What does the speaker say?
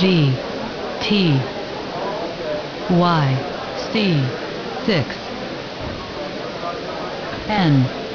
G T Y C 6 N